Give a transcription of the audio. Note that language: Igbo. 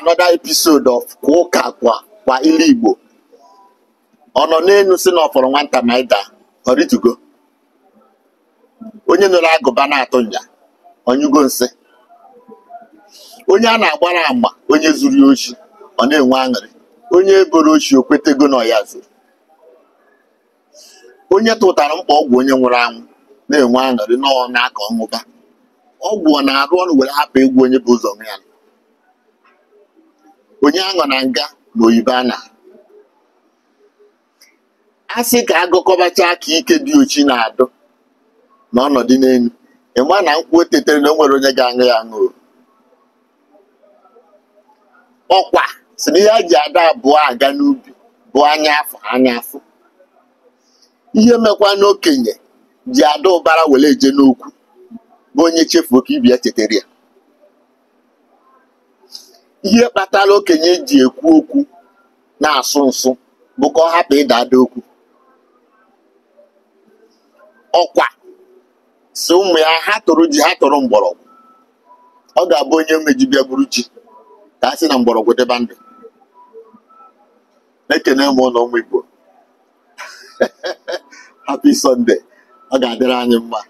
another episode of kwa ụka kwa kwa ilu igbo ọ nọ n'elu si na ọfọrọ nwata ma ịda ọ ritugo onye nụrụ agụba na-atụ nya onyugo nsị onye a na-agbara agba onye zuru oshi ọ na-enwe aṅụrị onye eboro ochi o kwetego na ọya zuru onye tụtara mkpa ọgwụ onye nwụrụ anwụ na-enwe aṅụrị na aka ọnwụba, ọgwụ ọ na-arụ ọrụ were hapụ egwu onye bụ ụzọ ya onye aṅụ na nga ma oyibo ana a sị ka agụkọbacha aka ike dị ochi na-adụ na ọnọdụ enwe ịma na nkwụ otetere na o nwere onye ga-aṅụ ya aṅụ ọkwa si na ihe ji ada abụọ aga n'ubi bụ anya afọ anya afọ ihe mekwa n'okenye ji ada ụbara were eje n'okwu bụ onye chefuo ka ibi ya ya ihe kpatara okenye ji ekwu okwu na-asụ nsụ bụ ka ọ hapụ ịda ada okwu ọkwa si ụmụ ya ha tụrụ ji ha tụrụ mgbọrọgwụ ọ ga-abụ onye mejibịa gburu ji ka a sị na mgbọrọgwụ dịba ndụ na-ekene m ụlọ ụmụ Igbo happy sọnde ọ ga-adịrị anyị mma